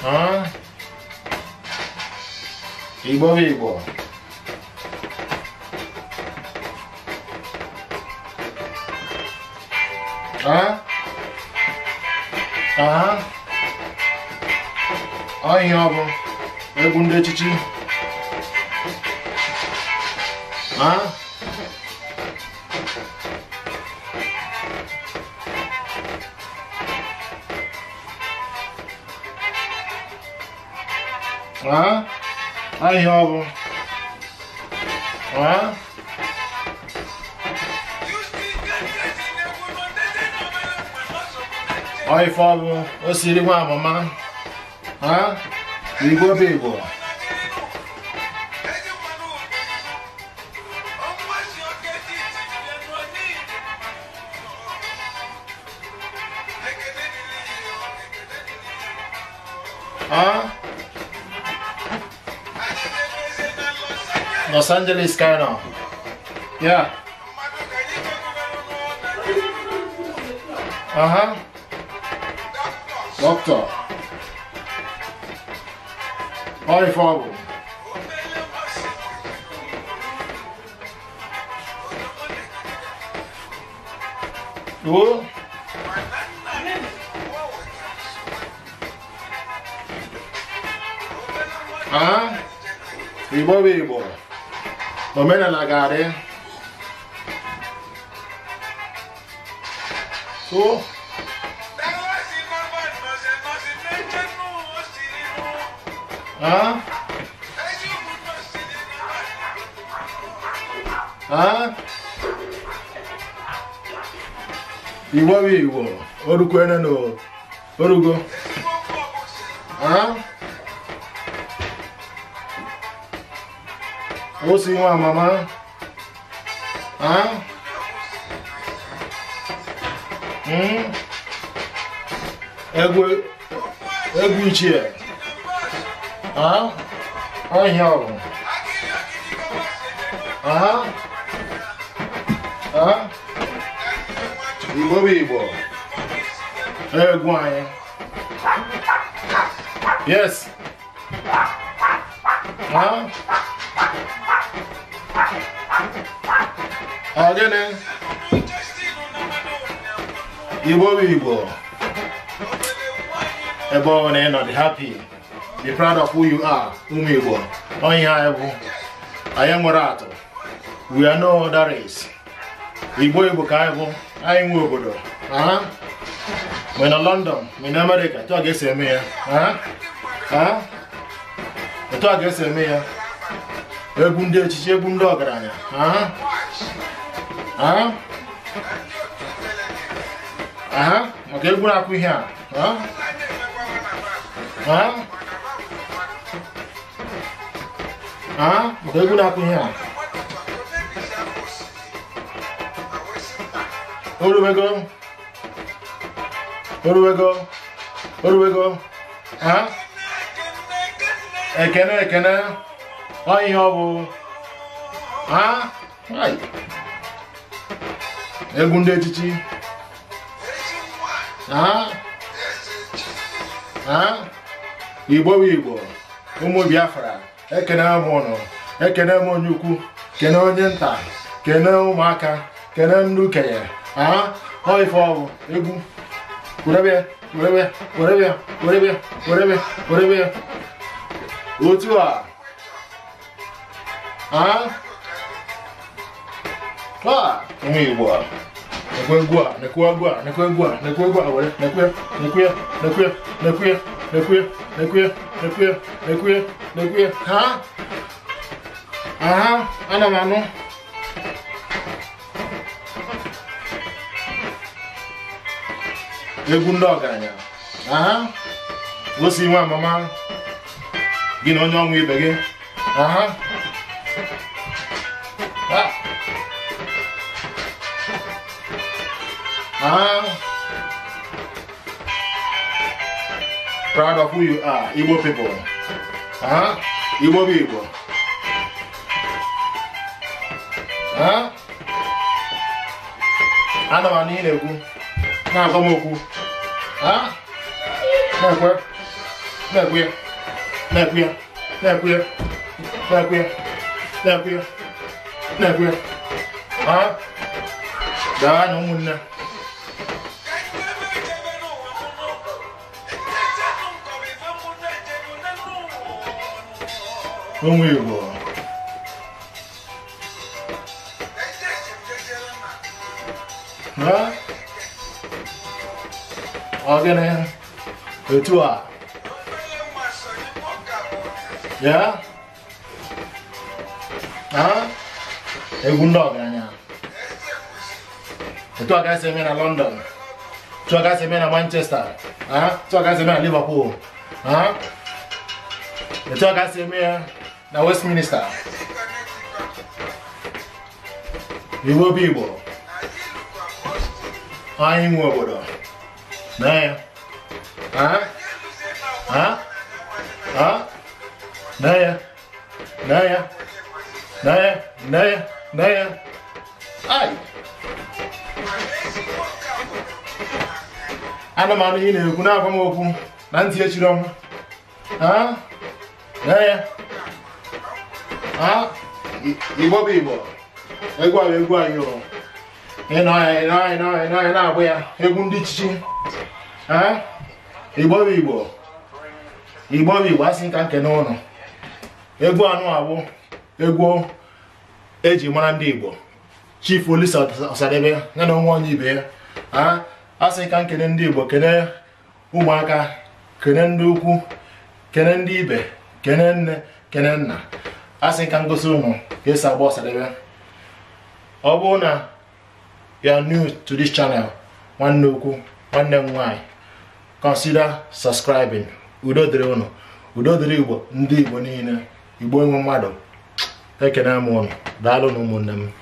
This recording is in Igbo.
어? 어? 어? 어? 이 법이고 어? 아? 아이 여보 왜 군대 지지? 아? Ó. Aí, ó. Ó. aí, Fábio. Ô, se liga uma mamãe. Hã? Ligou, Hã? Los Angeles Cardinal. Yeah. Uh huh. Doctor. Hi, favor. Who? Ah, uh-huh. ribo ribo. non me ne allagare su ah ah iwọ bí iwọ orúkọ ẹ náà nù orúkọ ah. We'll see mama. Huh? Hmm? Egwe, egwe chair. Huh? I hear him. Huh? Huh? Igbo be Igbo. Egwe. Yes. Huh? ọ gịnị igbo bụ igbo ebe ọ na ịnọ dị happy be proud of who you are ụmụ igbo onye anyị bụ anyị nwere atụ we are no other race igbo igbo ka anyị bụ anyị nwe obodo we na london we na america etu a ga-esi eme ya etu a ga-esi eme ya e bunde ci e bundo grania ah ah ah ma che buna qui ha ah ah ah ma che buna qui ha Where do we go? Where do we go? Where do we go? Huh? Ekene, Ekene. ọ ihe ọ bụ egwu ndị echichi igbo bụ igbo ụmụ biafra ekene m ụnụ ekene m onye ukwu kene onye nta kene ụmụaka kene ndị okenye ọ ife ọ bụ egwu werebe werebe werebe otu a hã à ngụy quá nè quê quá nè quê quá nè quê quá nè quê quá vậy nè quê nè quê nè quê nè quê nè quê nè quê nè quê nè quê nè quê hả à anh làm ăn không egwu ndị ọgaranya aha gosi nwa mama gị na onye ọnwụ ibe gị aha huh? Proud of who you are, Igbo people. Huh? Igbo people. Huh? I know I need a good. Now come on, Huh? Now where? Now where? Now where? Now where? Now where? Now where? Now where? Huh? Down on one. Ohun èèwọ̀. Ọ̀gẹ̀dẹ̀ ètò já, hã? É ndị ọgaranya. Etu a gasị eme na London, tu a gasị eme na Manchester, Tu a gasị eme na Liverpool, Tu a gasị eme The West Minister. Iwo Bibo. Ayin Wabodo. Naya. Huh? Huh? Huh? Naya. Naya. Naya. Naya. Naya. Aye. ana m anụ ihe na-ekwu na-agwa m okwu na ntị echiri ọnwa aa ya igbo bụ igbo egwu ahụ egwu anyị anyị na-agba ya egwu ndị chichi igbo bụ igbo igbo bụ igbo asị nka nke n'ụlọ egwu anụ abụ egwu eji mara ndị igbo chif Olisa Ọsadebe ya na onwe onye ibe ya asị ka nkene ndị igbo kene ụmụaka kene ndị ukwu kene ndị ibe kene nne kene nna a sị ka m gosi unu ka esi agba ọsadebe ọ bụrụ na you new to this channel nwanne ukwu nwanne m nwaanyị consider subscribing udo dịrị ụnụ udo dịrị igbo ndị igbo niile igbo enwe mmadụ ekene m unu daalụ na ụmụnne m